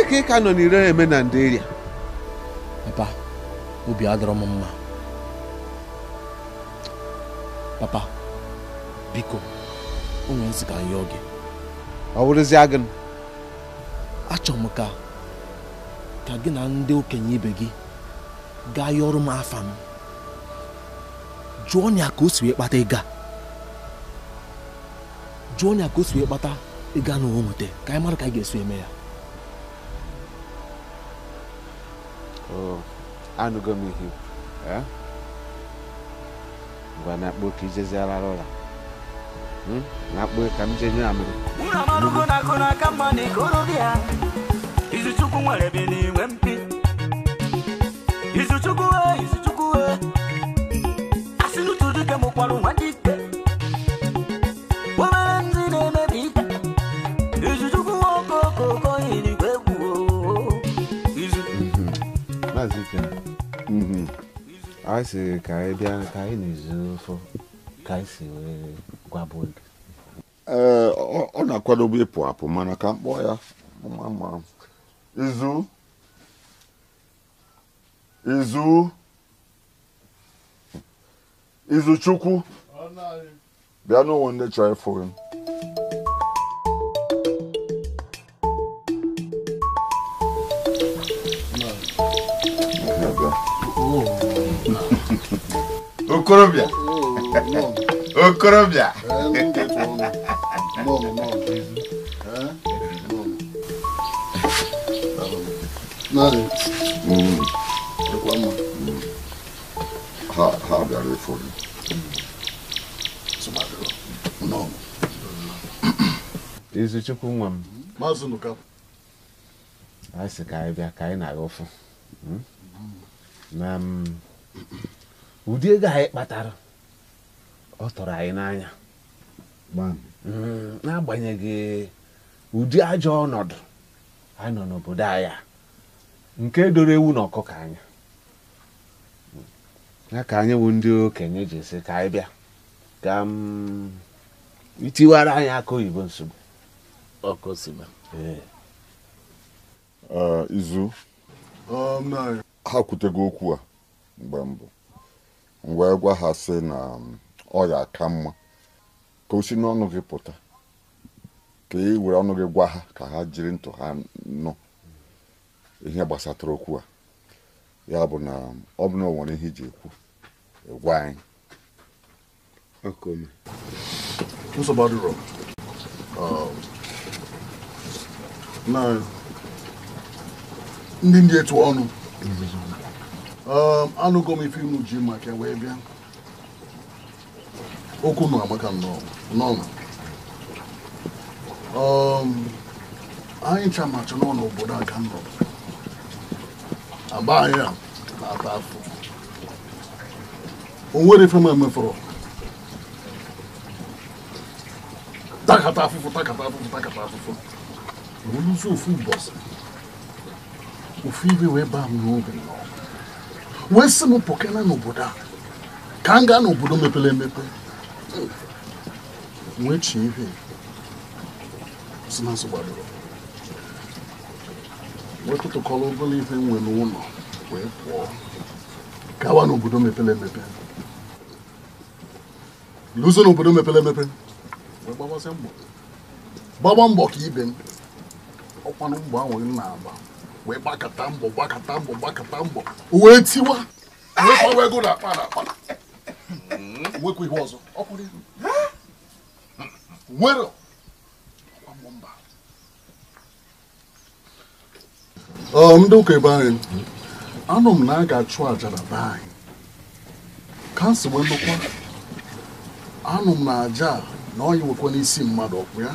ebee ka ị ka nọ n'ire eme na nderia papa obi adọrọ m mma papa biko onwe nzi ka yọọ gị ọ wụrụzie gị achọrọ m ka ka gị na ndị okenye ibe gị gaa ọrụ m afa m jụọ ya ka o si wee kpata ịga jụọ ya ka o si wee kpata ịga na o nweta ka anyị mara ka anyị ga-esi eme ya anụgo m ihe eh? ngwa na-akpọ ka ijezi arara ụra hmm? na-akpọ ka m jee nye amụrụ izuchukwu nwere bi n'inwe mpi izuchukwu e, izuchukwu e. asị n'utu dike mụkwarụ nwa dike maazị mhm. a sịrị ka anyị bịa ka anyị na-ezu ofe ka anyị si wee gwabụ oge ee ọ na-akwadobe ịpụ apụ mana ka mkpọ ya ma izu izu izu chukwu bịa n'ụwa ndị chọrọ ịfụ O Okorobia. o Hum. Eu não, Hum. Ha, ha, bia, le fori. Sumadro. Não. Isso tipo um. Mas no cap. Ai, se cai, a cai na ofa. Hum? na ụdị ego anyị kpatara ọ tọrọ anyị n'anya mm, n'agbanyeghị ụdị ajọ ọnọdụ anọ n'obodo anya nke doro ewu na ọkụkọ anya ya ka anyị bụ ndị okenye ji esi ka anyị bịa ka itiwara mm, anyị aka oyibo nsogbu izu ha kwutego okwu a mgbe mbụ wee gwa ha sị na um, ọ ya aka mma ka o si n'ọnụ gị pụta ka ị e were ọnụ gị gwa ha ka ha jiri ntụ ha nụ ihe gbasatara okwu a ya bụ na um, ọ bụ na o nwere ihe iji ekwu e gwa anyị um, ndị ndị etu ọnụ Um, anụgo m ife inu ji maka wee bịa okwu nọ agbaka n'ọnụ um, anyị ncha macha n'ọnụ obodo aka nọ agba anyị a na-ata afọ o nwere ife m emefọrọ takata afụfụ takata afụfụ takata afụfụ oluzi ofu ụbọchị ofu ibe wee baa m n'obi wee sị m pụkena n'obodo a ka m gaa n'obodo mepere emepe wee chie ihe nsonaazụ gbadoro wee tụtụkọrọ ụbụla ife nwe n'ụlọ wee pụọ gawa n'obodo mepere emepe luzo n'obodo mepere emepe wee gbagbazie mbọ gbagba mbọ ka ibe m ọkwanụ mgbọ ahụ na-agba wee gbakọta mbọ gbakọta mbọ gbakọta mbọ wee tiwa wee ego na akpa na akpa nwekwa hmm? ihe ọzọ nwere mba um, ndị ụka ebe anyị anụ m na a ga-achụ aja na be anyị ka si wee lụkwa anụ m na aja na ọ nwekwa n'isi mmadụ ya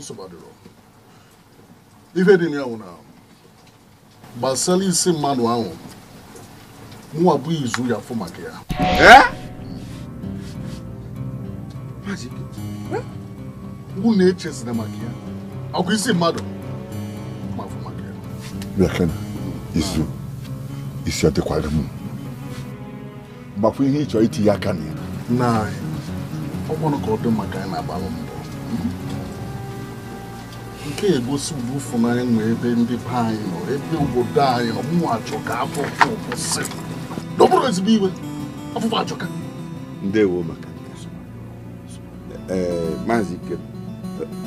nsọgbadoro ife dị n'ahụ na gbasara isi mmadụ ahụ mụwa bụ izu ya afọ maka ya mụ na-echezina maka ya ọkwa isi mmadụ ma afọ maka ya bịakena izu isi adịkwara m gbakwa ihe ịchọ itinye aka na ya na ọkwanụ ka ọ dị maka anyị na-agbalụ mbọ nke egosi ụdị ụfụnanya nwe ebe ndị be anyị nọ ebe obodo anyị nọ mụnwa achọka afọfọ kwụsị n'ọbụrụ ezigbo iwe afọfọ achọka ndewo maka ee maazị ike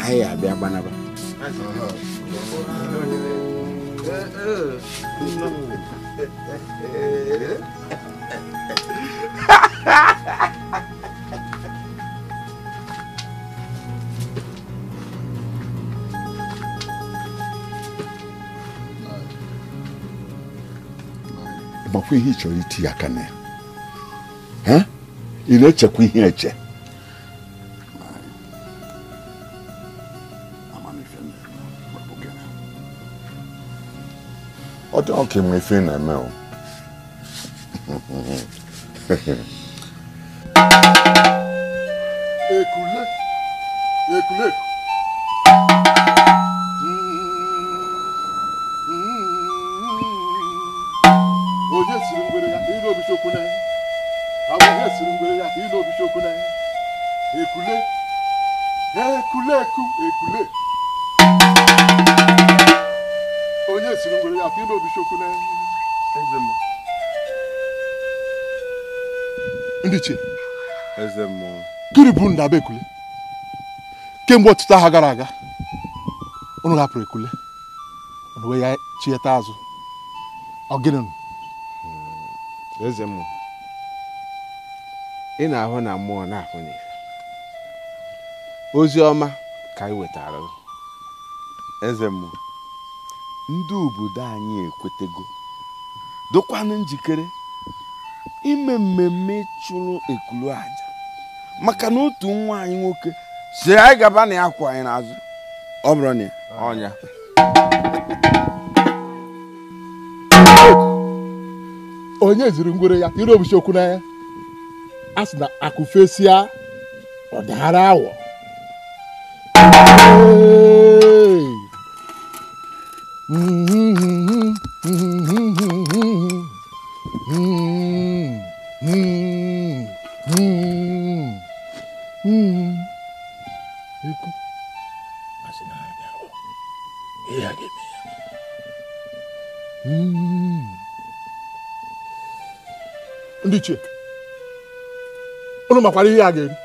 anyị abịa gbanaba ha ha ha chekwa ihe ị chọrọ iti aka na ya ị na-echekwa ihe eche ọ dị ọka ịma ife na-eme o ekule ekuleku gịnị bụ na ekule kemgbe ọtụtụ agha gara aga unu hapụrụ ekule unu wee ya chieta azụ ọ gịnị hmm, eze m ị na-ahụ na mmụọ na-ahụ ozi ọma ka anyị wetara eze m ndị obodo anyị ekwetego dokwanụ njikere ime mmemme chụrụ ekulu aja maka na otu nwa anyị nwoke siri anyị gaba na ya kwụ anyị n'azụ ọ bụrụ na ọnya onye ziri ngwere ya ire obuchi okwu ya a sị na akụfesịa ọdara awọ mm. makwara ihe a ga-eri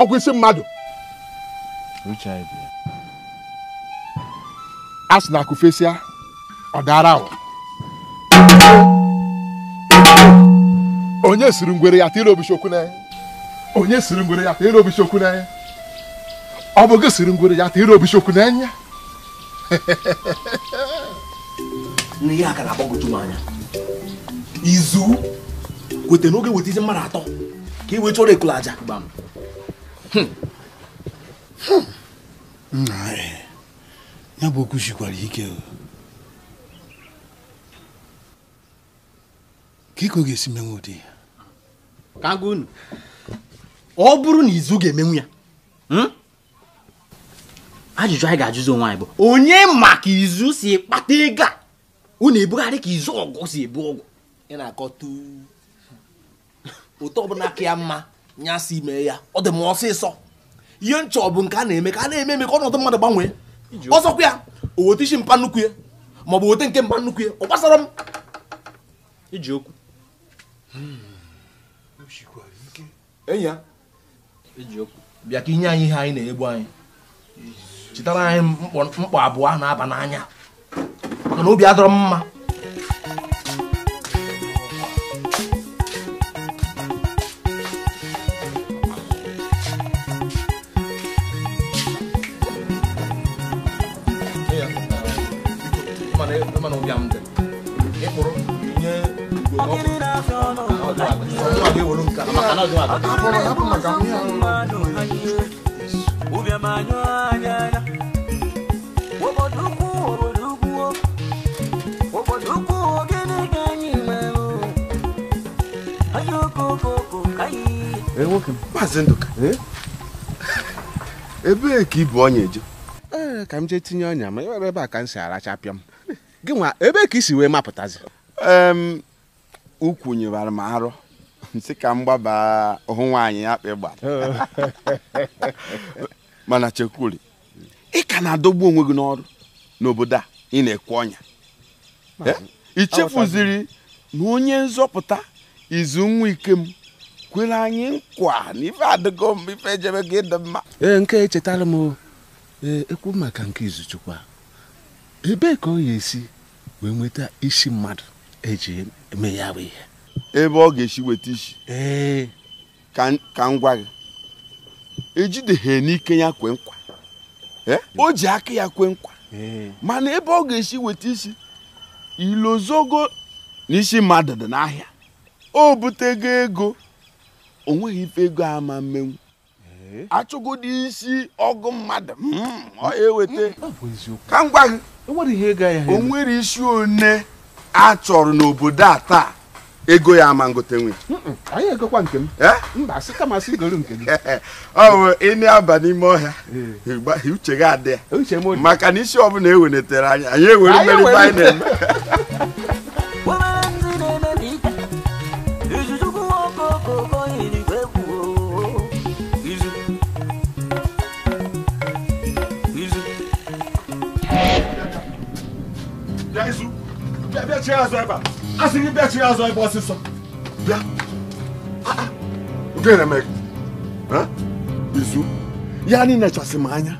ọkwa isi mmadụ a sị na akụfesịa ọ dara ahụ onye siri ngwere ya tiri obichi okwu onye siri ngwere ya tiri obichi okwu n'anya ọ bụ gị siri ngwere ya tiri obichi okwu n'anya ihe a ka na-agbagwoju anya izu kweta n'oge weta izi mmadụ atọ ka iwe chọrọ ekulu aja gbam ya bụ okwu sikwara ike ka iko ga-esi menwe ụdị ya ka ọ bụrụ na izu ga-emenwu ya hmm? ajụjụ anyị ga-ajụzi onwe anyị bụ onye maka izu si kpata ego a unu ebugharị ka izu ọgụ si ebu ọgụ ị na-akọ tu otu ọbụla aka ya mma nya si mee ya ọ dị m ọsịsọ ihe nchọ bụ nke a na-eme ka a na-eme eme ka ọnọdụ mmadụ gbanwee ọzọkwa ya o weta isi mpa nnukwu ya ma ọ bụ weta nke mpa nnukwu ya ọ gbasara m iji okwu hmm. bịa ka inye anyị ihe anyị na-egbu anyị chetara anyị mkpọ abụọ na-aba n'anya maka na obi adọrọ m mma volonta ebee ka ibu ọnya eje ka m jee tinye ọnya ma ewere ebe a ka m si arachapịa m gị nwa ebee ka i si wee mapụtazi ee m ukwunyewara m arọ si ka m gbaba hụ nwaanyị ya akpị gbara mana chekwuri ị ka na-adọgbu onwe gị n'ọrụ n'obodo a ị na ekwu ọnya ichefuziri na onye nzọpụta izu nwa ike m kwere anyị nkwa na ife adịgo m ife ejebe gị dị mma ee nke echetara m ee ekwu maka nke izuchukwu ebee ka ọ ya esi wee nweta isi mmadụ eji eme ya ihe ebe ọ ga-esi weta isi ka m gwa gị ejideghị n'ike ya kwe nkwa o ji aka ya kwe nkwa mana ebe ọ ga-esi weta isi ilozogo n'isi mmadụ dị n'ahịa o butego ego o nweghị ife ego ama mmenwu achụgodi isi ọgụ mmadụ hmm, ọ eweta ka m gị o nwere isi one a chọrọ n'obodo a taa ego ya ama ngote nwe anyị egokwa nke m eh? mba asị kama asị goro nke gị ọ bụ ị aba n'ime ọhịa eh. uche gị adị ya maka na isi ọbụla eweletere anya anyị ewere mmeri ibe anyị na-eme Yeah, bịa chiri azụ ebe a asị gị bịa chiri azụ ebe ọsịsọ bịa nke na-eme izu ya anyị nechasị m anya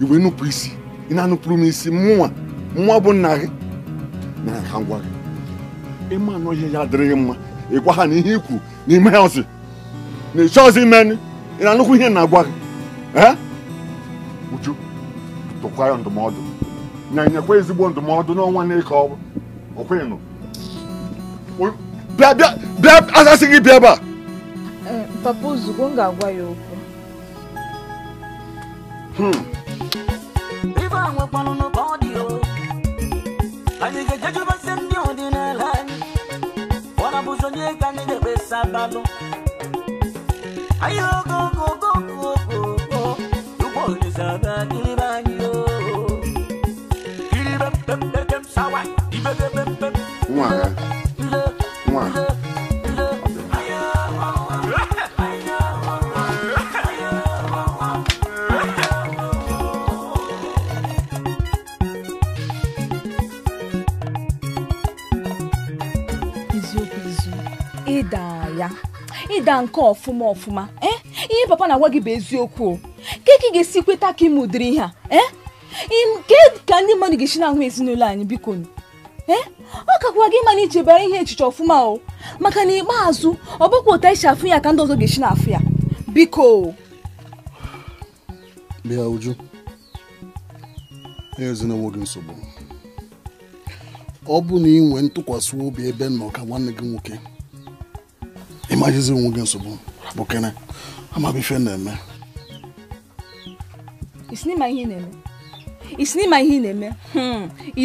iwe nupụ isi ị na-anụpụrụ m isi mụnwa mụnwa bụ nna gị na ha ngwa gị ịma anọ ihe ya adịrịghị mma ịgwa ha na ihe ikwu n'ime ya na ịchọ ọzi mmenụ ị na-anụkwu ihe na-agwa gị uju tụkwa ya ndụmọdụ na não ezigbo ndụmọdụ n'ọnwa ɔkwan no bia bia bia Asa sigi bia ba. papa ozugbo m ga-agwa ya okwu. ibe a nwekwanụ ka ọ dị o anyị ga-ejejubesi ndị ọdịnala anyị ọna bụzi onye ka anyị ga-ekpesa abalụ anyị ogogo ogogo ogogo ugbo olise aga kiribe anyị o kiribe pepepem sawa ibebebe nwa ha nwa ịda ya nke ọfụma ọfụma eh? ihe papa na-agwa gị bụ eziokwu o ka ị ga-esi kweta ka ị mụdịrị ihe a eh? ka ndị mmadụ ga-esi na ezinụlọ anyị biko ee eh? ọkakwa gị mana iji bara ihe echiche ọfụma o maka na ikpeazụ ọ bụkwa ụta isi afụ ya ka ndị ọzọ ga-esi na-afụ ya biko bịa uju ezinụlọ gị nsogbu ọ bụ na ị nwee ntụkwasị obi ebe nọ ka nwanne gị nwoke ịmajizi onwe gị nsogbu rapụkene amaghị na-eme isi n'ịma ihe na-eme isi n'ịma ihe ị na-eme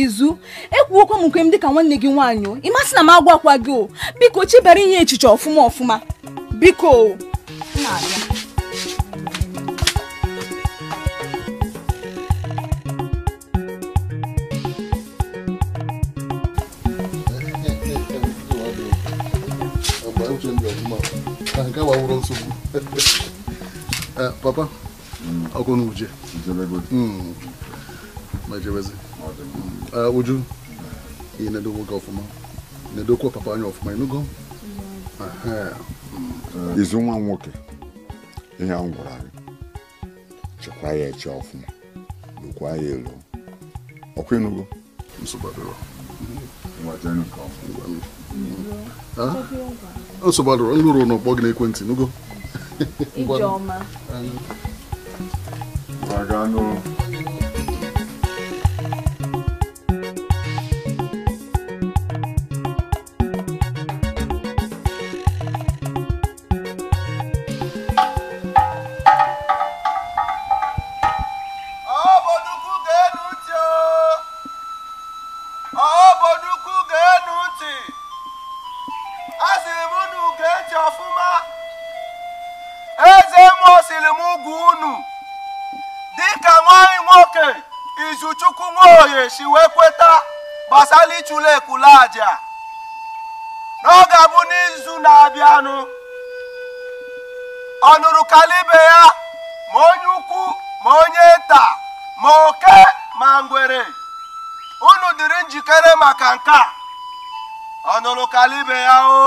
izu ekwuokwa m nke m dịka nwanne gị nwaanyị o ịmasị na m agwa akwa gị o biko chebere ihe echiche ọfụma ọfụma biko papa ọkụ n'uje majewezi uh, uju ị na-edokwa gị ọfụma ndị edokwa papa anya ọfụma ịnụgo mm-hmm. mm-hmm. izu nwa nwoke ihe ahụ gwara anyị ya eche ọfụma ya elu ọkwa ịnụgo nsogbu nlụrụ n'ọkpọ gị n'ekwentị n'ugo kalibɛ ya o. Oh.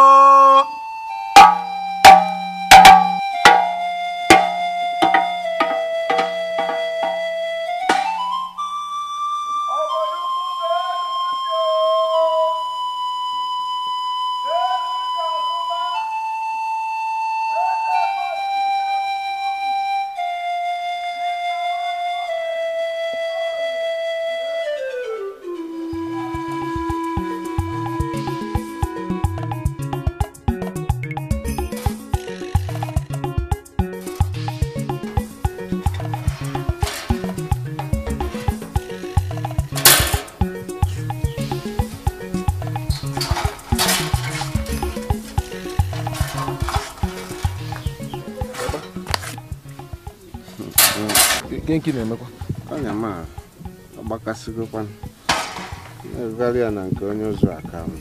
ihe nke na-emekwa anya ma agbakasịgokwa na-erugharị ya na nke onye ụzọ aka m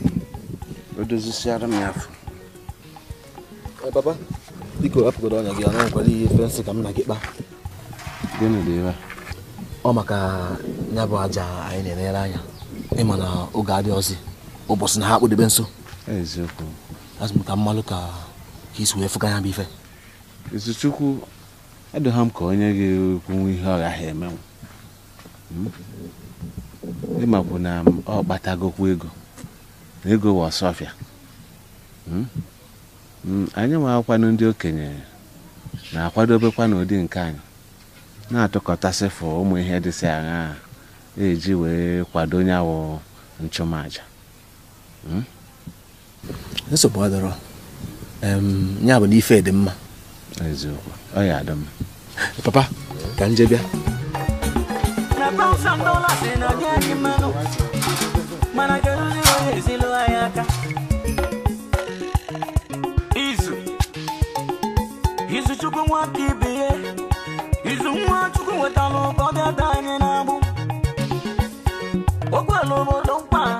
o dozisiara m ya afọ eh, papa biko hapụgodo ọnya gị a nwekwara ihe fensị ka m na gị kpa. gịnị dị ebe ọ maka ya bụ aja anyị na-enyere anya ịma na oge adị ọzọ ụbọchị na ha akpụdebe nso eziokwu azụ ka mmalụ ka ka isi wee fụga ya bụ ife izuchukwu edogha m ka onye ga-ekwenwu ihe ọ gaghị emenwu hmm? ịmakwu na ọ kpatagokwu ego na ego wa hmm? hmm, anyị nwe akwado ndị okenye na-akwadobekwa n'ụdị nke anyị na fụ ụmụ ihe dịsị aṅa eji wee kwado nyawụ nchụmaja nsogbu adọrọ bụ ife dị eziokwu ọ ya adị mma papa ka m bịa izuchukwu ya chukwu ụkọ anyị na-agbụ mkpa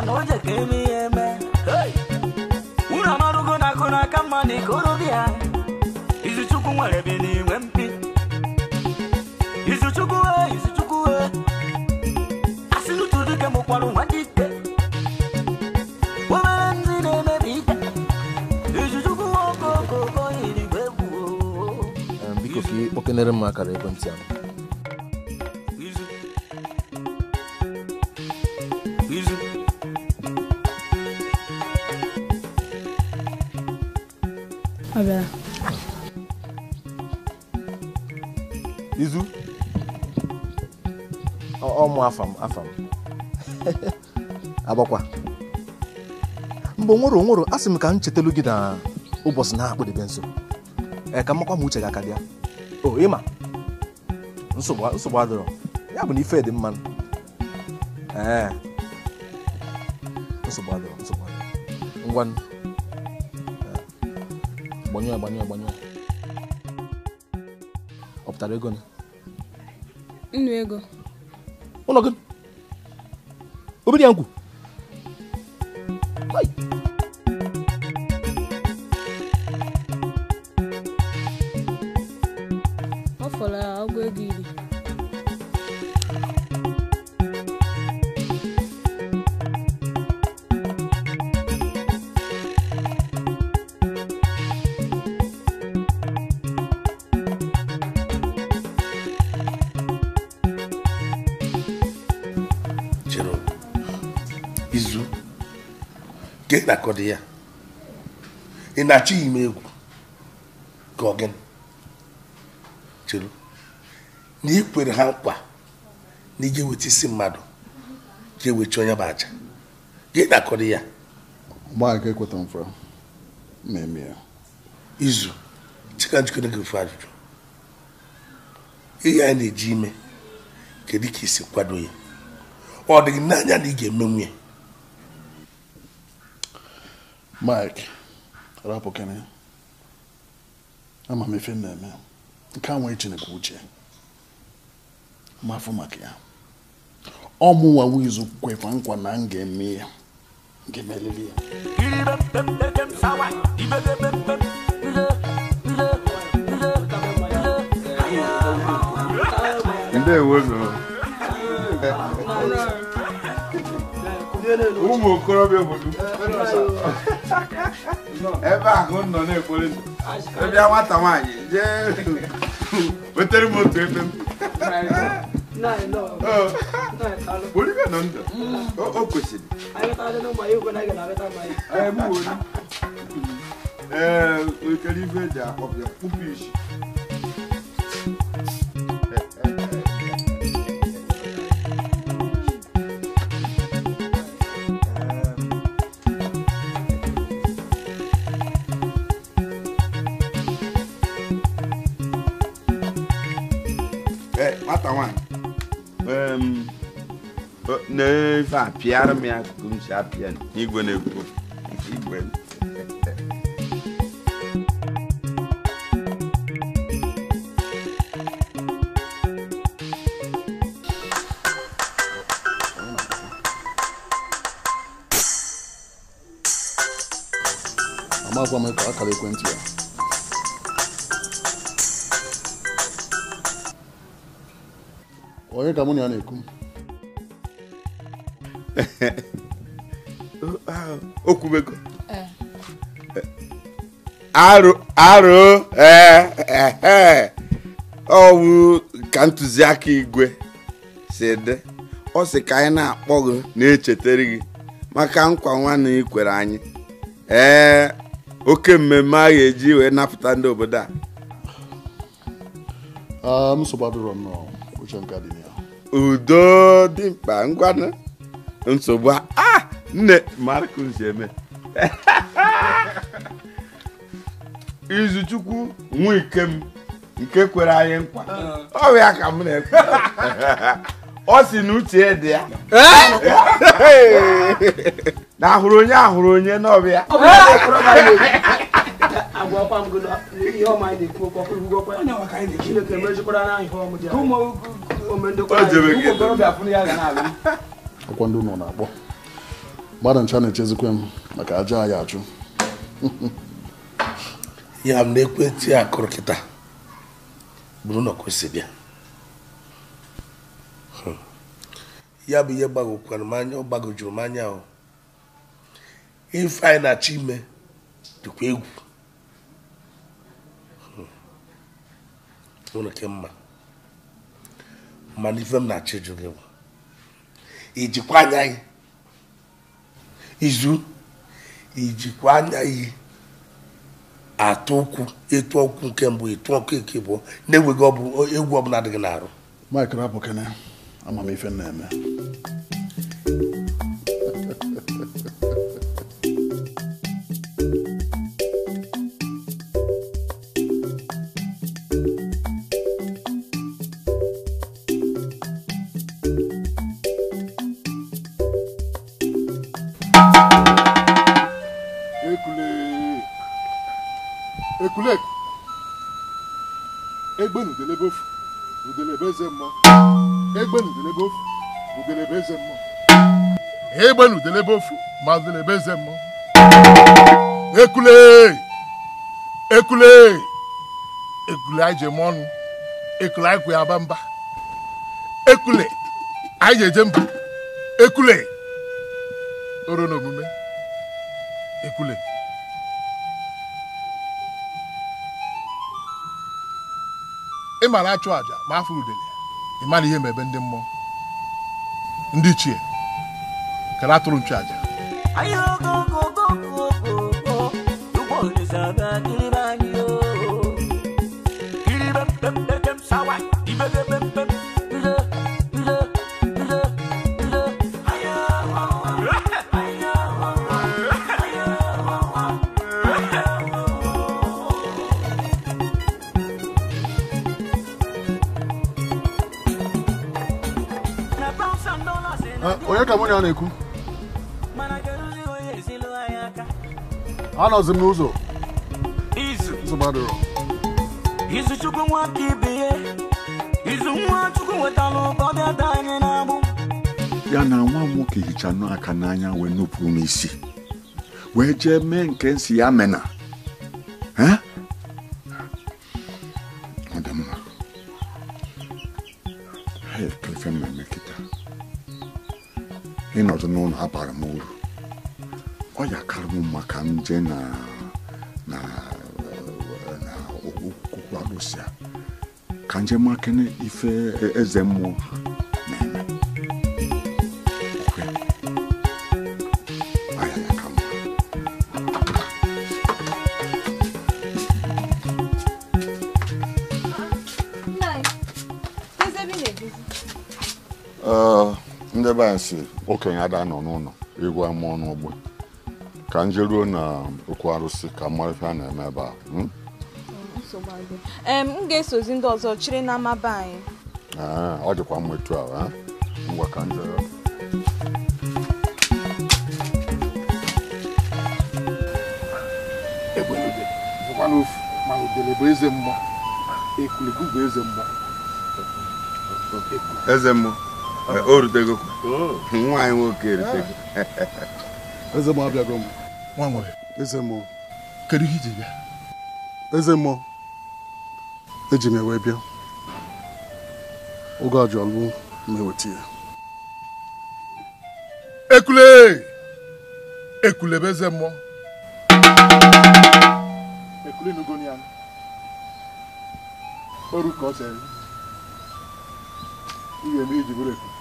na na ikorobịa Izuchukwu nwere bi n'inwe mpi Izuchukwu e Izuchukwu e asị n'otu dike mụkwara nwa dị ike obere ndị na-emebi ike Izuchukwu okokoko eluigwe bụ biko ka ị kpọkenere m akara ekwentị ahụ ọmụ afam afam agbakwa mgbe nwụrụ nwụrụ a sị m ka m chetelu gị na ụbọchị na-akpụdebe nso ee ka makwa m uche gị aka bịa o ịma nsogbu adịrọ ya bụ na ife dị mma ee nsogbu adịrọ nsogbu adịrọ ngwa gbanye gbanyụọ gbanyụọ ọ pụtara ego nnu ego ụlọ gị ya ịnakọdị ya ị na achọ m egwu ka ọ na ị kwere ha nkwa na ị ga-eweta isi mmadụ ga-ewechi onye bụ aja gị ya gbaaka ekweta mfra na-eme ya izu chika njikere gị ofe ajụjụ ihe anyị na-eji ime kedu ka isi kwado ya ọ dịghị n'anya na ị ga eme ya Mike rapụkịrị ama m efe m na-eme nke a nwere Chineke uche mafu maka ya ọ mụnwa wizu kwekwa nkwa na m ga-eme ya ga-emeriri ya ndewo ụmụ okorobịa obodo ebe ahụ nọ na-ekpori ndụ ebe nwata nwaanyị jee wetere m otu ebe m olive nọ ndụ o kwesịrị ee ekele ife eji akpọbịa kpụpụ isi apịara me ya akụkụ m si apịa igwe na-ekwu igwe amakwa m akara ekwentị ya onye ka mụ na ya na-ekwu okwubego arụ ọwụ ka ntụziaka igwe si dị ọ si ka anyị na-akpọ gị na-echetara gị maka nkwa nwanne ị kwere anyị ee eh, oke mmemme a ga-eji wee napụta ndị obodo a ah, udo dị mkpa ngwa nsogbu a ah! nne Marcus Eme Izuchukwu nwa nke kwere anyị nkwa ah. ọ ka m na-ekwe ọ si na uche dị ya eh? na ahụrụ onye ahụrụ onye n'ọbịa ọkwa ndị ụlọ na-akpọ gbada ncha na-echezikwe m maka aja anyị achụ ya m na ekwentị a kụrụ kịta bụrụ na kwesịrị ya hmm. ya bụ ihe gbagokwara m anya ọ gbagojuru m anya ahụ ife anyị na-achọ ime dịkwa egwu hmm. nwere ke mma mana ife m na-achọ ịjụ gị bụ ijikwa anya anyị. izu ijikwa anaghị atụ ụkwụ etu ọkụ nke mbụ etu ọkụ eke bụ na-enweghị egwu ọbụla adịghị n'arụ Mike Rabukene amamife na-eme egbenudelebe ofu udelebe eze mmụọ egbenudelebe ofu ma udelebe eze mmụọ ekule ekule ekule anyị ji eme ọnụ ekule anyị kwụ ya aba mba ekule anyị ji eje mba ekule oro na omume ekule ị ma na-achụ àjà ma afọ udele ịma na ihe mebe ndị mmụọ ndị ichie kere atụrụ nchu aja Bye. onye ọ na-ekwu anọzi m n'ụzọ izu chukwu ibe ya na ya na nwa nwoke hicha aka n'anya wee nupụrụ m isi wee jee mee nke nsi ya mena ha abara m uru ọ yakara m maka nje na na na okpukwu alụsịa ka nje makene ife eze mmụọ nsi okenye ada nọ n'ụlọ egwu ama ọnụ ogbe ka m jeruo na okwu arụsị ka mmadụ a na-eme ebe a hmm? m ga-esozi ndị ọzọ chịrị na amaba anyị ah, ọ dịkwa mma etu a ngwa ka m nwaanyị nwoke eritego ah. eze mmụọ abịago m nwa nwere eze mmụọ kedu ihe iji bịa eze mmụọ eji m ewee bịa oge ajọlụ ma eweta ya ekule ekule bụ eze mmụọ ekule nugo ya oru ka ọ chere ihe eme iji bụrụ ekule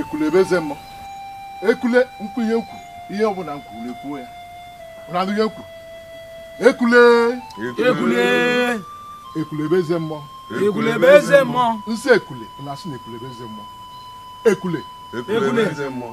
ekulebeze m ekule mkpu ihe nkwu ihe ọbụla nkwuru ekwuo ya ụranụ ihe nkwu ekule ekule ekulebeze mmụọ ekulebeze mmụọ nsị ekule na-asị na ekulebeze mmụọ ekule ekulebeze mmụọ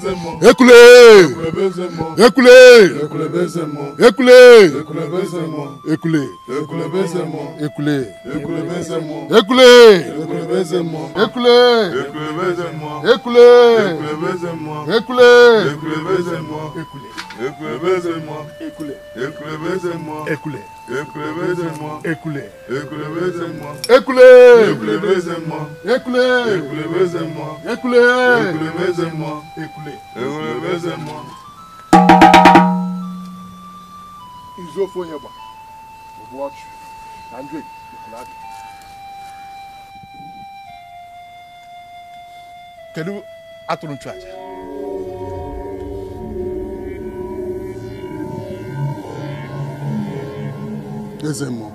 ekule ekule ekule ekule ekule ekule ekule ekule ekule ekule. Ekulebeze moi. Ekule. Ekulebeze moi. Ekule. Ekulebeze moi. Ekule. Ekulebeze moi. Ekule. Ekulebeze moi. Ekule. Ekulebeze moi. Ekule. Ekulebeze moi. Ekule. Ekulebeze moi. Izofo yeba. Watch. Andre. Ekulade. Kedu atụrụ nchụaja? E zem mo,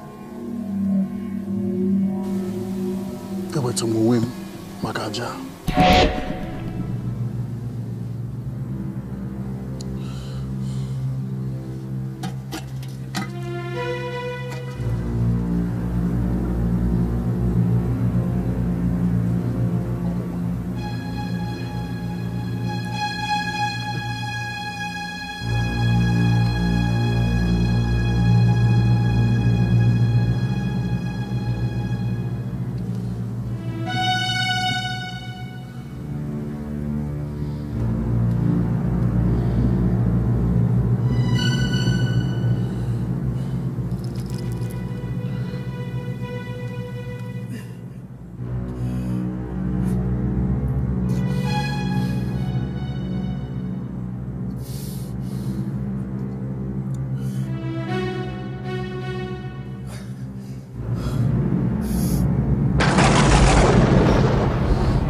e weto mou wim maka ja.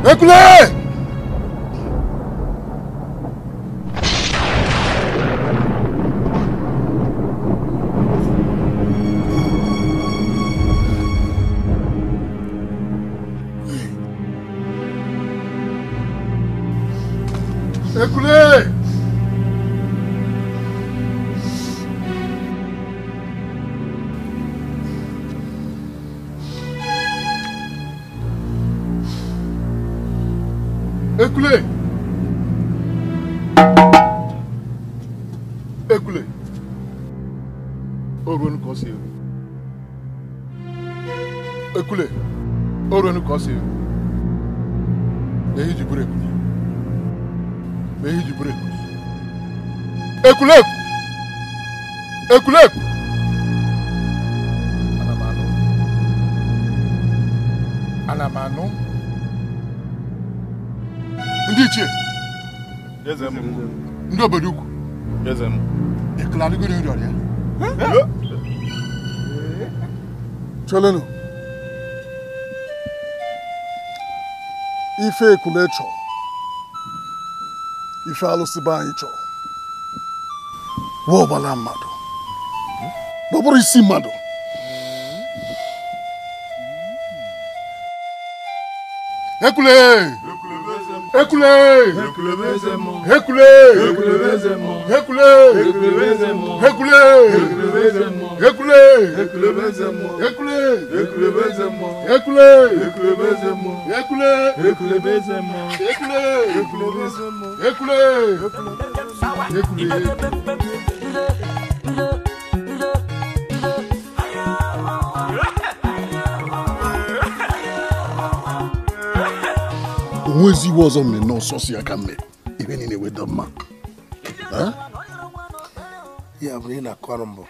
Bekle! ọ sị na ehi ji bụrụ ekule na ehi ji bụrụ ekule ekuleku ekule ana m anụ ana anụ ndị ichie ndị obodo ukwu ekele adịgo nri ọrịa cholenu ife ekulu ịchọ ife alụsị be anyị chọọ wee ọgbala mmadụ ọ bụrụ isi mmadụ ekule ekule ekule ekule ekule ekule ekule ekule bẹ se mọ ekule ekule bẹ se mọ ekule ekule bẹ se mọ ekule ekule bẹ se mọ ekule ekule bẹ se mọ ekule ekule ekule. onwezi iwe ọzọ mere n'ọsọsọ ya ka mere ibe niile weda mma ya bụrụ ị na-akọrọ mbụ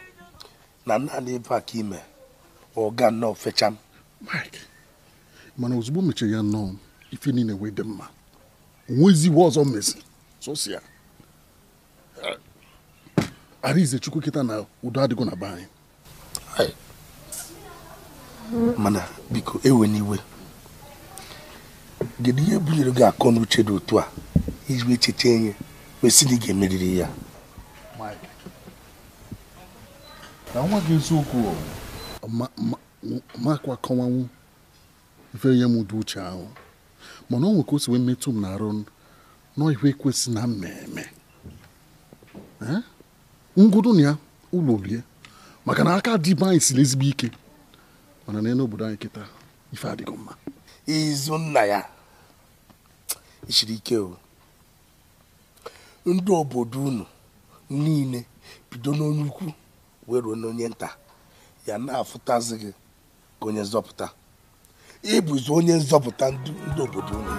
na naanị ebe a ka ime ọga nnọọ fecham mana ozugbo mechara ya nnọọ ife niile wee dị mma onweziwo ọzọ mezi sosi ya arize chukwu kịta na udo adịgo na be anyị mana biko ewe n'iwe gịnị ihe bunyere gị akọ n'uche dị otu a iji echiche enye wesị ị ga-emeriri ya na nwa gị eziokwu makwa akọwanwu ife ihe m dị uche ahụ mana ọ nwere ka o si wee metụ m na-arụ nọ ihe ekwesị na mmemme ngwụdụ na ya ụlọ olie maka na aka dị anyị siri ezigbo ike mana na n'obodo anyị kịta ife adịghị mma izu nna ya siri ike o ndị obodo unu niile bido n'onye ukwu wee ruo n'onye nta ya na-afụtazi gị ka onye nzọpụta ịbụzi onye nzọpụta ndị obodo unu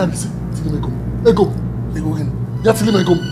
Anzi, Let Eko, eko gen. Yat sikimekom.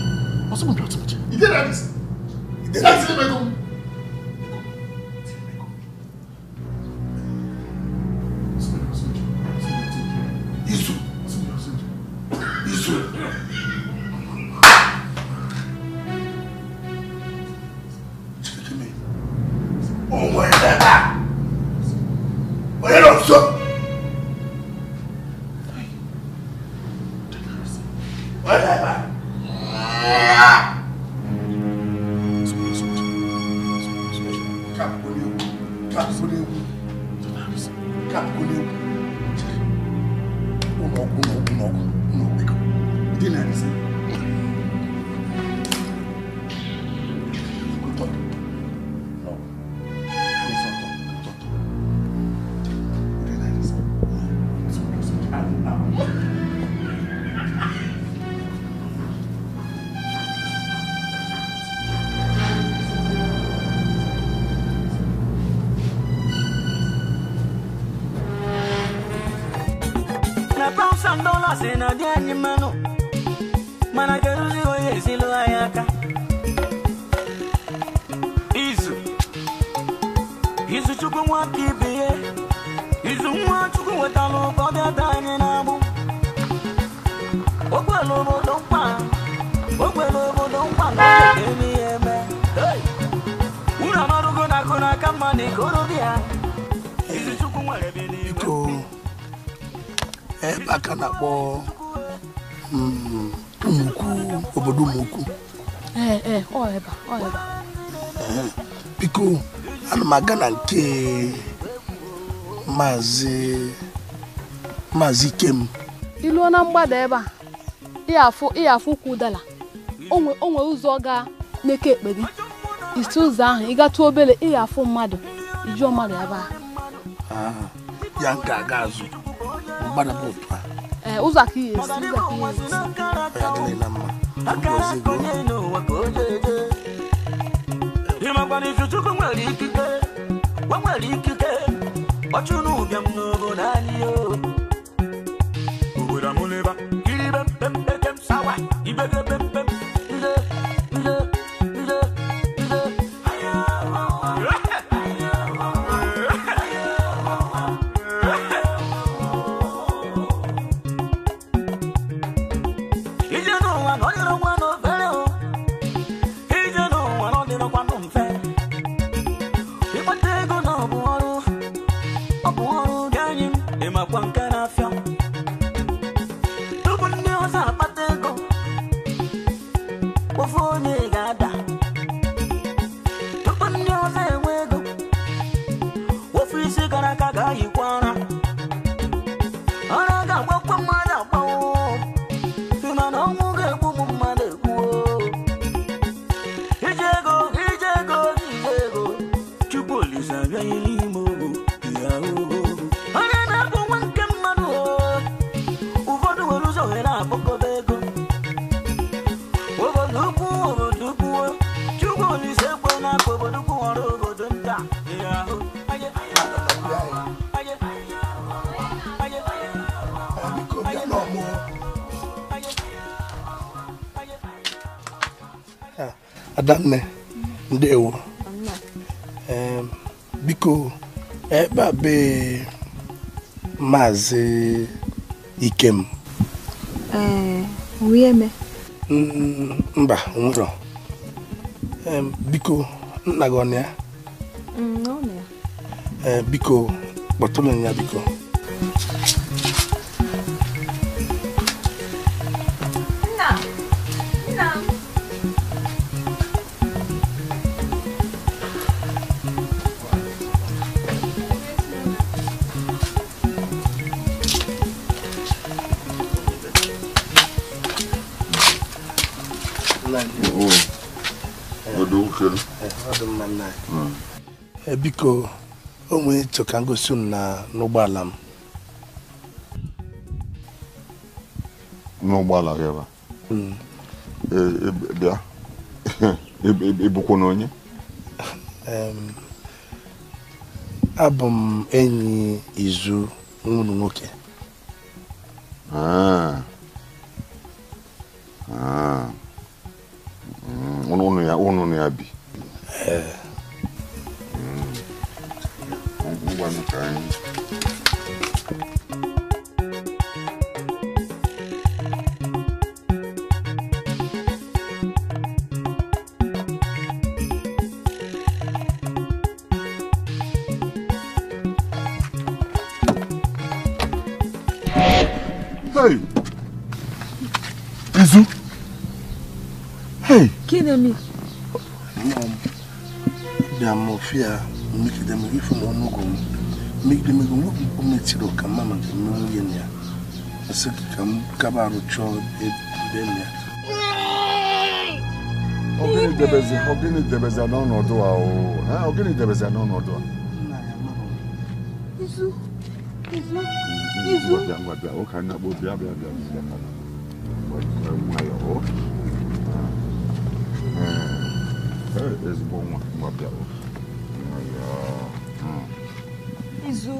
na-akpọ hmm, obodo Ụmụukwu biko ana m aga na nke maazị maazị Ikem iluo na mgbada ebe a ịyafụ ụkwụ dala onwe ụzọ ga n'eke ekpe gị isi ụzọ ahụ ị gatụ obere ịyafụ mmadụ ijuo mmadụ ebe a ya nke aga azụ mgbada bụ otu a Uza ki. Uza ki. Imagwani chuchuku mwali kike. Wa adanne ndewo biko ebe a be maazị ikem eh, mba nwụrọ biko nna gị ọ na mm, eh, ya biko kpọtụrụ ya biko biko o nwere ịchọ ka ngosi m n'ụgbọala m n'ụgbọala gị ebe hmm. e, e, e, bịa ịbụkwa na onye abụ m enyi izu nwụrụ nwoke kama rucho edenya ogini debeze ogini debeze n'ọnọdụ a o ha ogini debeze n'ọnọdụ a izu izu izu ngwa ngwa bịa ụka nna kpọ bịa bịa bịa bịa nwayọ ezigbo nwa ngwa bịa izu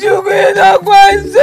救命！他快走！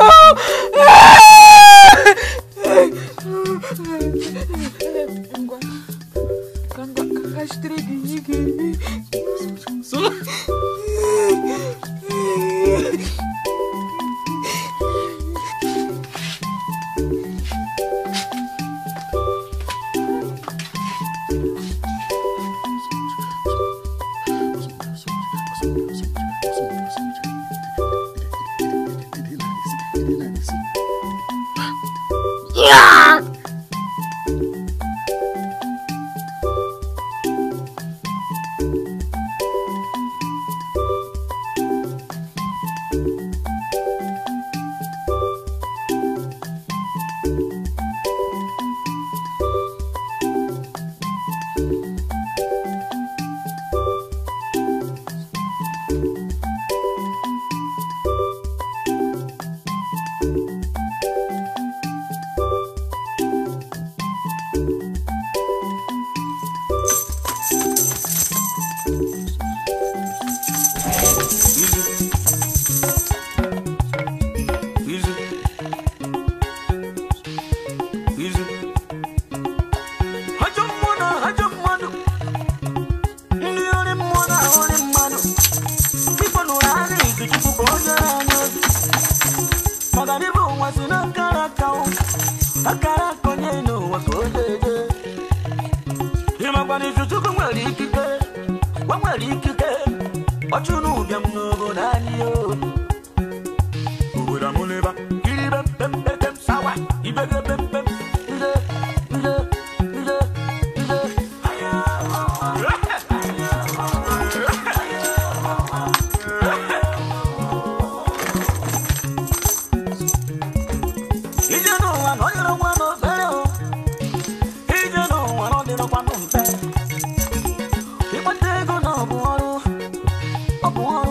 want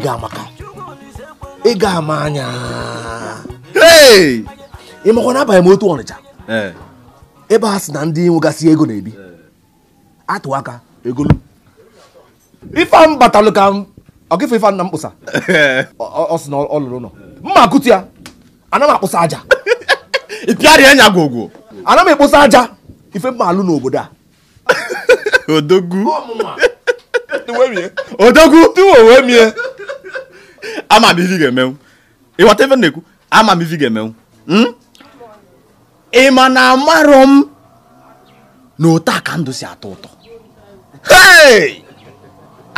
ga amaka ị ga ama anya ị makwa na abalị m otu ọnịcha ebe a sị na ndị nwegasị ego na-ebi atụ aka egolu ife m batalụ ka m ọkịfụ ife nna m kpụsa ọ sị na ọlụrụ nọ. mma akụtu ya ana m akpụsa aja ịpịarịa nya gwogwo ana m ekpụsa aja ife mma alụ n'obodo a odogwu odogwu tuwo wee mie ama m ivi ga-emenwu ịghọta ife na-ekwu ama m ivi ga-emenwu hmm? ị ma na amarọ m na otu ka ndụ si atọ ụtọ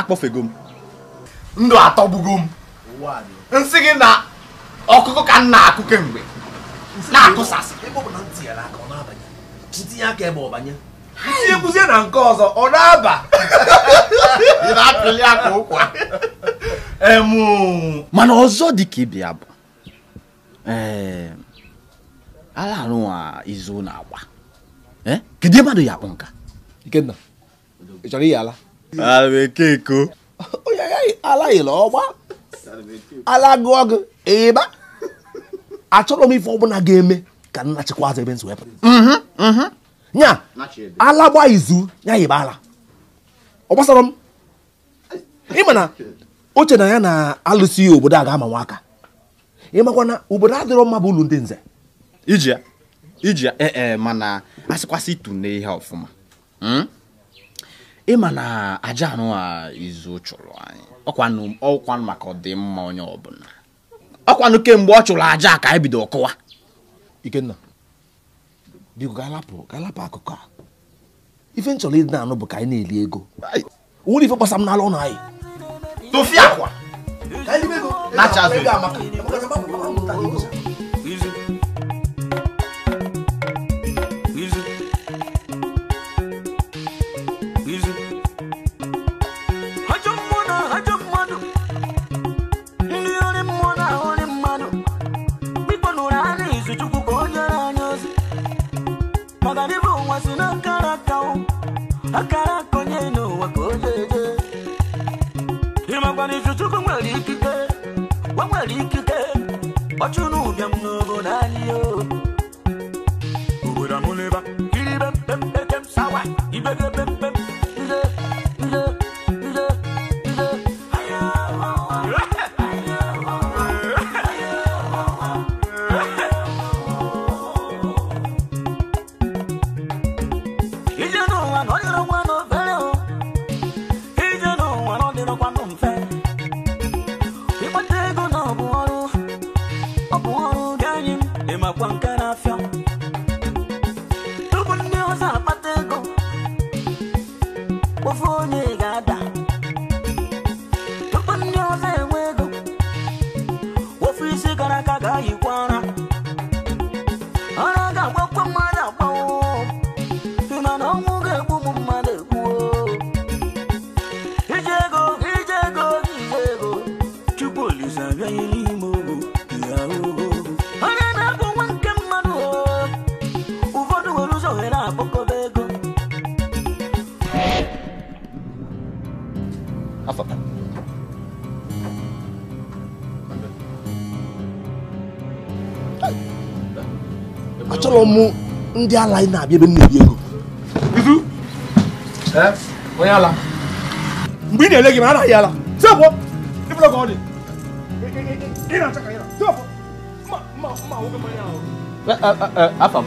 akpọfego m ndụ atọgbugo m nsị gị na ọkụkọ ka m na-akụ kemgbe na-akụsasị si ekwuzie na nke ọzọ ọ na-aba mana ọzọ dịka ịbịa bụ eh, alarụnwa izu na agba eh, kedu mmadụ ya akpụ nka Ikenna chọrọ ala onye ala gị ịba achọrọ m ife ọbụla ga-eme ka nna chịkwa azụ ebe nya ala gba izu ya yiba ala ọ gbasara m ịma na o na ya na alụsị ihe obodo a ga-ama nwa aka ịmakwa na obodo adịrọ mma bụ ụlọ ndị nze iji ya iji ya ee eh, eh, mana asịkwasị itu na ihe ọfụma hmm? ịma na aja anụ a izu chụrụ anyị ọkwanụ ọkwanụ maka ọdịmma onye ọbụla ọkwanụ kemgbe ọ chụrụ aja ka anyị bido kụwa ikenna biko galapụ akụkọ ife nchọrọ ịdị na-anụ bụ ka anyị na-eli ego nwere ife gbasa m n'ala ụlọ anyị akwa akara konye n'ụwa ka o jeje ịmakwana ife Chukwu nwere ikike o nwere ikike ọchụ n'ụbịam ndị ala anyị na-abịa ebe m na-ebi ego onye ala mgbe ị na-ele gị ma anaghị ala tepụ ịbụla ka ọ dị ị na-acha ka ya tepụ mma mma mma nwoke mmanya ahụ afam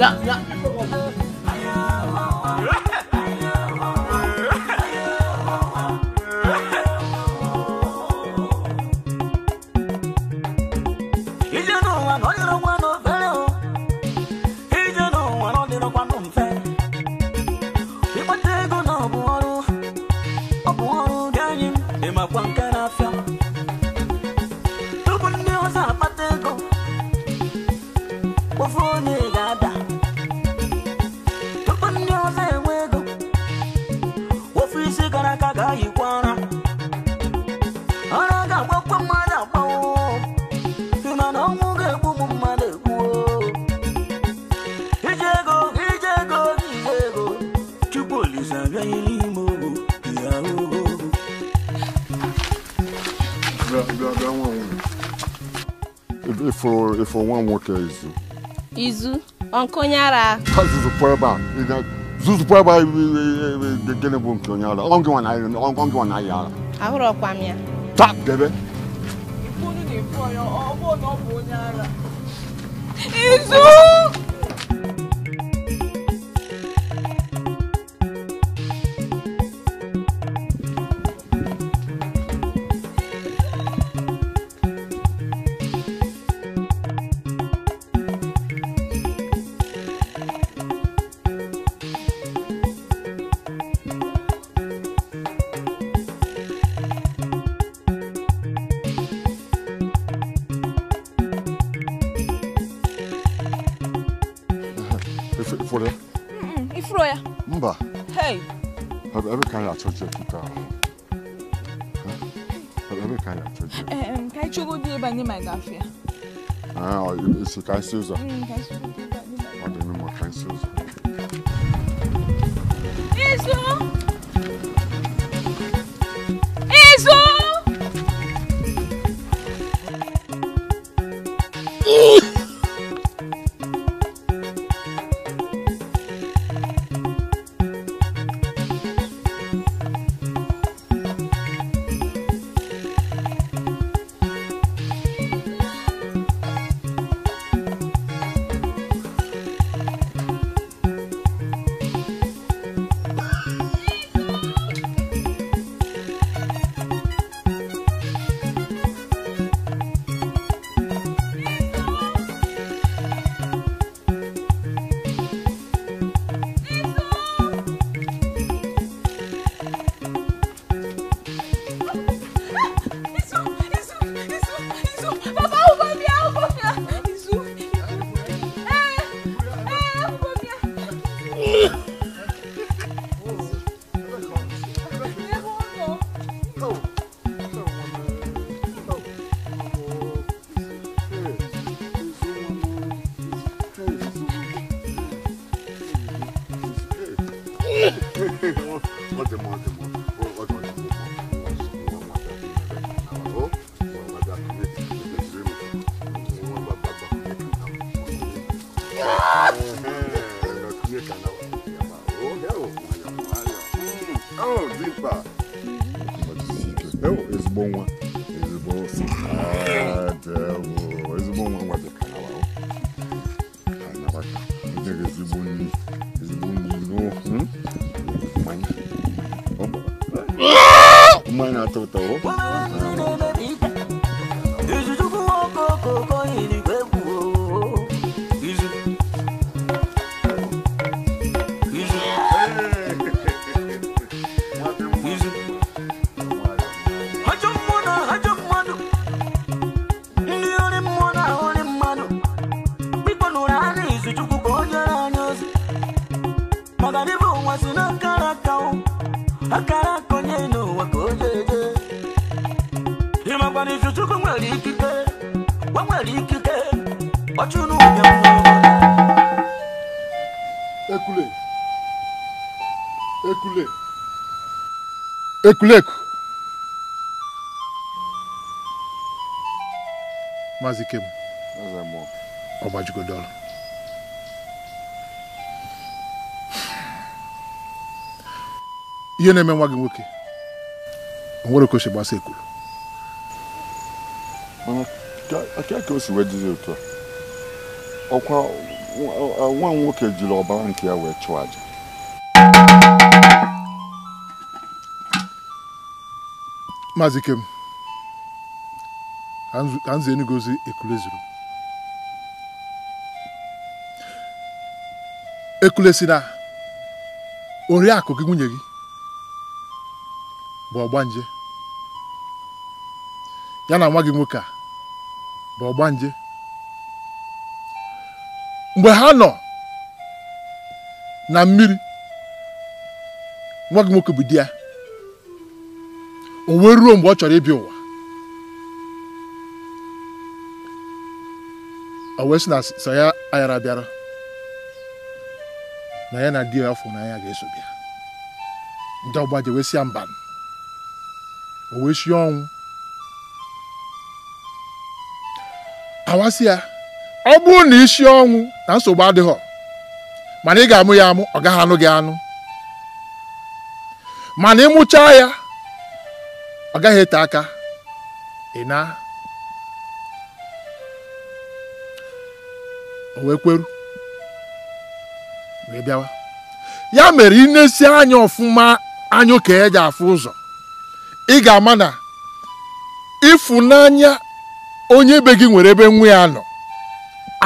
Yeah, yeah. for nwa nwoke izu izu onye ara ka zuzukwa ebe a zuzukwa ebe a gịnị bụ nke onye ara ọ gịnwa na ahịa ara ahụrụkwa m ya ta debe izu kind of problem. Um, di Ah, oh, Mm, ọtúnú yẹn fún ọ. ekule ekule ekuleku maazị ikem ọ gbajigodola ihe na-eme nwa gị nwoke o nwere ka o si gbasa ekwuru ka o si wee jizi otu a ọkwa nwa m nwoke jiri ọbara nke ya wee chụọ aja maazị Ikem ka nze enugozi ekule zuru ekule si na oriakụ gị nwunye gị bụ ọgbanje ya na nwa gị nwoke a bụ ọgbanje mgbe ha nọ na mmiri nwa gị nwoke bụ di ya o wee ruo mgbe ọ chọrọ ịbịa ụwa o wee sị na sọ ya ayara bịara na ya na di ya afọ na ya ga-eso bịa ndị ọgba ji wee si ya mba o wee sie ọnwụ awasị ya ọ bụrụ na isi ọnwụ na nsogbu adịghị mana ị ga-amụ ya amụ ọ gaghị anụ gị anụ mana ịmụchaa ya ọ gaghị ete aka ị na wee kweru wee bịawa ya mere ị na-esi anya ọfụma anya oke eji afụ ụzọ ị ga-ama na ịfụnanya onye be gị nwere ebe nwa ya nọ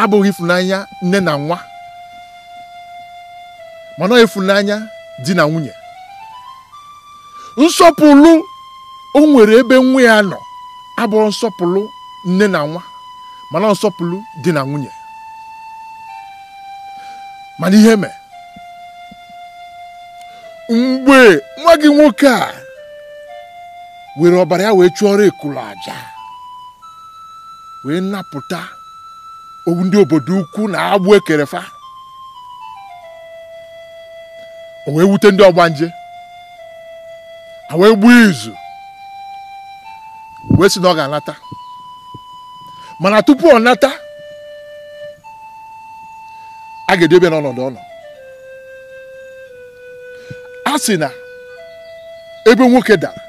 abụghị ịfụnanya nne na nwa mana ịfụnanya di na nwunye nsọpụrụ o nwere ebe nwa ya nọ abụrụ nsọpụrụ nne na nwa mana nsọpụrụ dị na nwunye mana ihe mee mgbe nwa gị nwoke a were ọbara ya wee chụọrọ ekulu aja wee napụta owu ndị obodo ukwu na agbụ ekerefa o wee wute ndị ọgbanje ha wee gbuo izu wee sị na ọ ga-anata mana tupu ọ nata a ga edebe n'ọnọdụ ọnọ a sị na ebe nwoke dara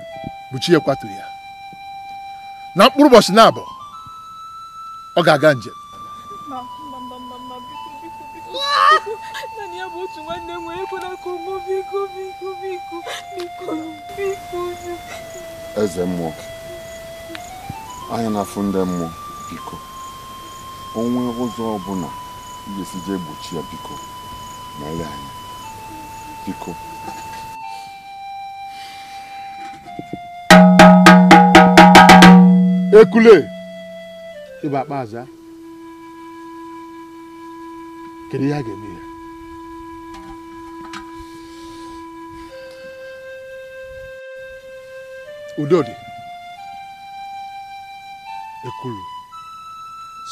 bụ chi ekwaturu ya na mkpụrụ ụbọchị na-abụ ọ ga-aga njem naanị ya bụ otu nwanne m nwere ego n'aka ụmụ biko biko biko biko biko eze mmụọ anyị na-afụ ndị mmụọ biko onwe ụzọ ọbụla ijesi jee gbochi ya biko na ele anya biko ekule ịba akpa aza kedu ihe a ga-eme ya udodi ekulu,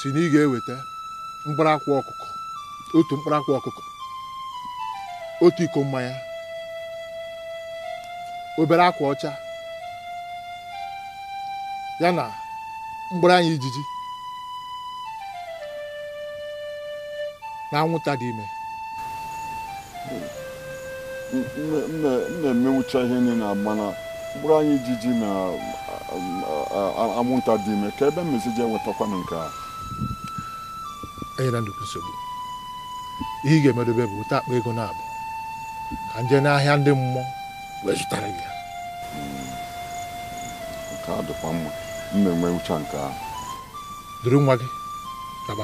si na ị ga-eweta mkparakwa ọkụkọ otu mkparakwa ọkụkọ otu iko mmanya obere akwa ọcha ya na mgbere anya ijiji na anwụnta dị ime na-emewucha ihe niile mana bụrụ anyị ijiji na anwụnta dị ime ka ebe mmezi ji enwetakwa na nke a enyela nnukwu nsogbu ihe ị ga-emedobe bụ ụta akpa ego na-abụ ka nje n'ahịa ndị mmụọ wee zụtara gị hmm. nke a dịkwa mma m na-enwe uche nke a. duru nwa gị gaba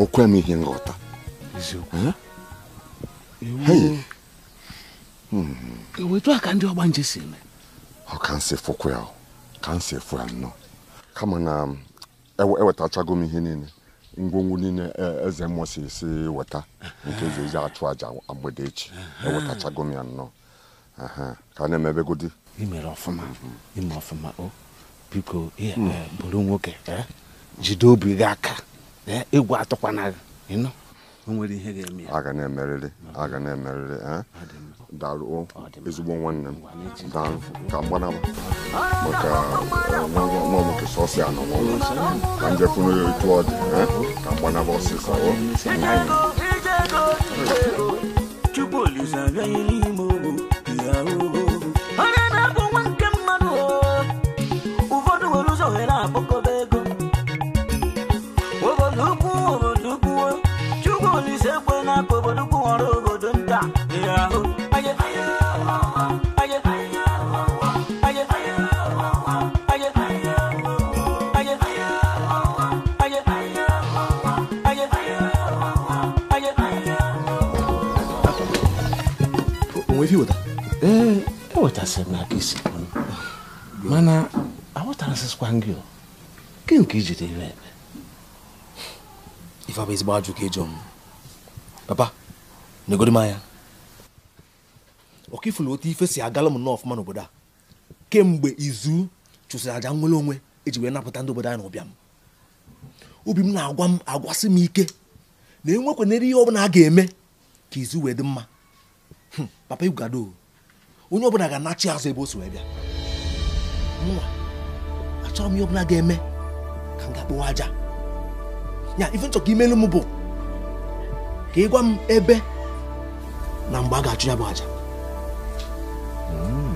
okwe m ihe nghọta ewetu a ka ndị ọgba nje si eme ọ ka nsị fụkwa ya ka nsị fụ ya nnọọ kama na ewetachago m ihe niile ngwongwo niile eze mmụọ si si weta nke eze eji achụ aja mgbede echi ewetachago m ya nnọọ ka na-emebegodi imere ọfụma mm-hmm. ime ọfụma o oh. eh, biko bụrụ nwoke eh. jide obi gị aka egwu atụkwana gị nwere ihe ga-eme ya. aga na-emerịrị aga na-emerịrị daalụ ezigbo nwanne m daalụ ka mgbanaba maka nwa nwoke sọsị anọ nwa ka njekwuru ya etu ọ dị ka mgbanaba ọsịsa chukwu olise abịaghị e weta ee ewetasịrị eh, m n'aka isi mana aghọtarasịkwa gị gị nke ijide ire ebe ife abụ ezigbo ajụ ka ịjọ m papa negodi m anya ọkifụlụ otu ife si agala m nnọọ ọfụma n'obodo a kemgbe izu chụsịrị aja nwere onwe eji wee napụta ndị obodo anyị n'ụbịa m obi m na-agwa m agwasị m ike na enwekwanere ihe ọ bụla a ga-eme ka izu wee dị mma papa gado onye ọbụla ga-anachi azụ ebe o si wee bịa mụnwa achọrọ m ihe ọbụla ga-eme ka m ga-akpụwa aja ya ife nchọka imelu m bụ ka ị gwa m ebe na mgbe a ga-achụ ya bụ aja hmm.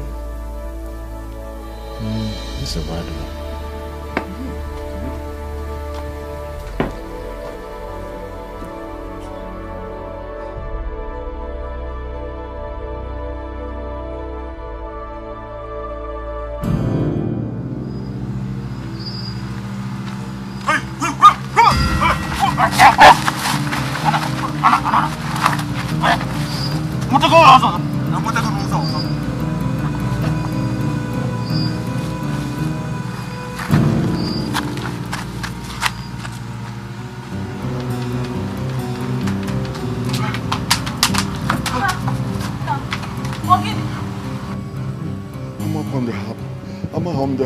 Hmm. nsogbu adịla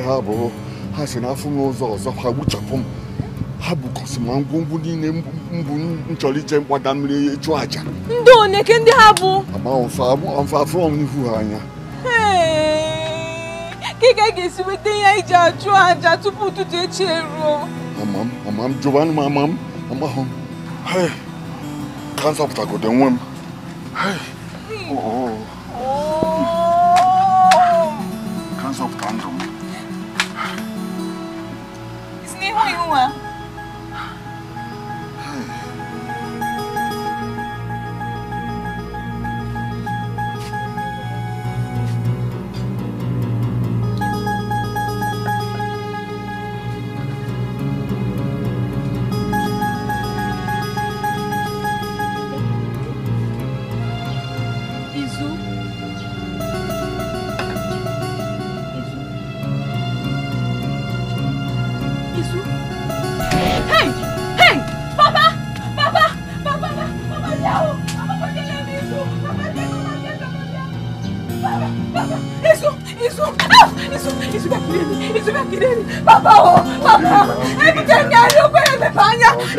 ha abụrụ ha si n'afọ n'ụzọ ụzọ ọzọ ha gbuchapụ m ha bukọsi ma ngwongwo niile mbụ m chọrọ ije mgbada mmiri chụọ aja ndị oneke ndị ha bụ amafafọ m n'ihu ha anya kika ga-esi weta ya iji achụ aja tupu ụtụtụ echi eruo ama m ama m jụbanụ m ama m amahụ m ka m zọpụtagodo nwe m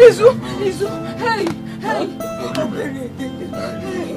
Izu, Izu, hey, hey,